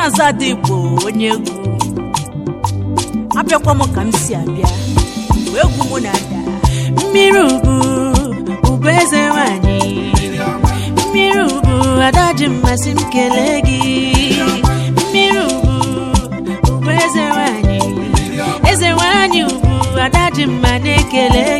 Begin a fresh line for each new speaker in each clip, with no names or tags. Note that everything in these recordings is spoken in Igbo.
Ken bụ onye egwu abịakwa m ka m si abịa mgbe egwu m na-ada mmiri ugwu, ugwu eze nwanyị mmiri ugwu, ada ji mmasị m kelee gị mmiri ugwu, ugwu eze nwanyị eze nwanyị ubu ada ji mma na-ekele gị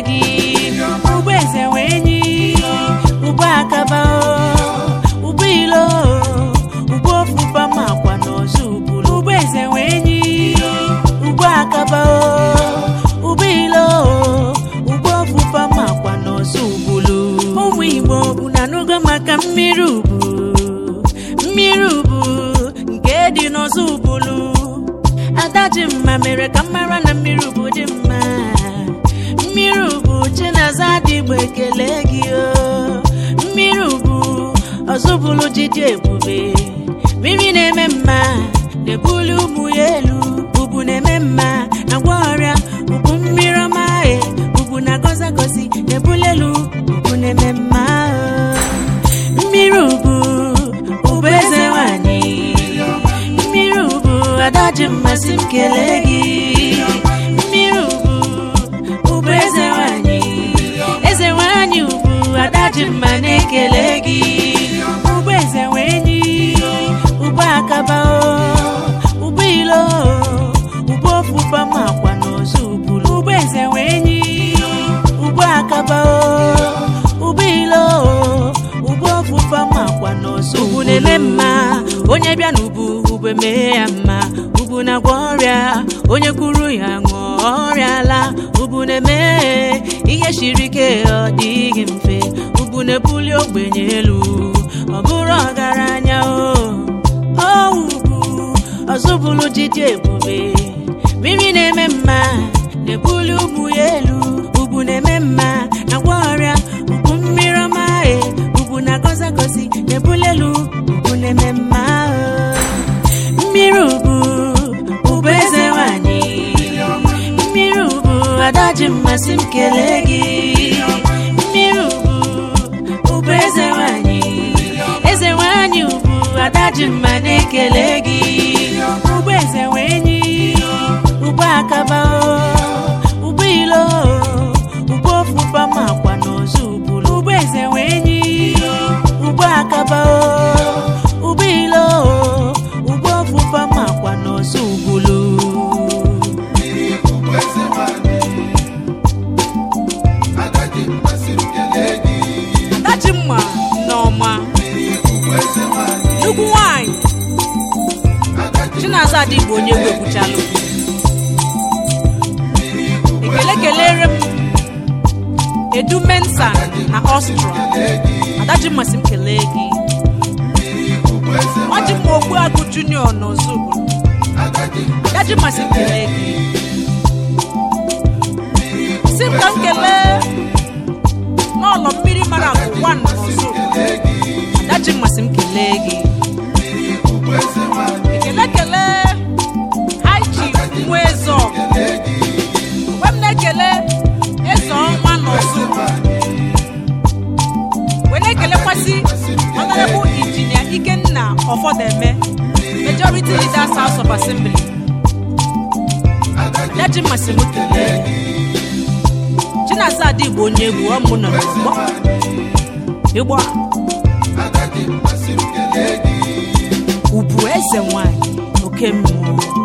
ka mmiri ubu mmiri ubu nke dị n'ọzọ ubulu ada dị mma mere ka mmara na mmiri ubu dị mma mmiri ubu chinaza adịgbo ekele gị o mmiri ubu ọzọbulu ji ebube mmiri na-eme mma na-ebuli ụmụ ya elu ubu na-eme mma na gwa ọrịa ubu mmiri ọma e, ubu na gozi na-ebuli elu ubu na-eme mma ji mmasị m gị mmiri ugwu ụbụ eze nwanyị eze nwanyị ugwu ada ji mma na-ekele gị ụbụ eze nwe enyi ụbụ akaba ụbụ ilo ụbụ ofufe ma akwa na ozu ubulu ụbụ eze enyi ụbụ akaba ụbụ ilo ụbụ ofufe ma akwa na ozu na-eme mma onye bịa n'ubu ubu ya mma ubu na-agwọ ọrịa onye kwuru ya ṅụọ ọrịala ubu na-eme ihe shiri ike ọ dịghị mfe ubu na-ebuli ogbenye elu ọ bụrụ ọgaranya o ubu ọzụbụlụ dịdị ebube mmiri na-eme mma na-ebuli ubu ya elu ubu na-eme mma ji mmasị m kelee gị mmiri ugwu ụbụ eze nwanyị eze nwanyị ugwu ada ji mma na-ekele gị ụgbọ eze nwe enyi ụgbọ akaba ụgbọ ilo ụgbọ ofufa makwa n'ozu bụrụ ụgbọ eze nwe enyi ụgbọ akaba Chinasa bụ onye egwu ekwuchala okwu ekele kelere m edu mensa na ọstrọ adaji masị m kelee gị ọjị m okpu agụ junior n'ọzọ adaji masị m kelee gị si m ka m kelee n'ọlọ mmiri mara akụ wan n'ọzọ ekele eze ọnwa n'ọzọ wee na-ekelekwasị honorable injinia ikenna ọfọdeme majority leaders house of assembly daji mmasị m onye egwu ọmụ nọ ubu eze nwanyị oke mmụọ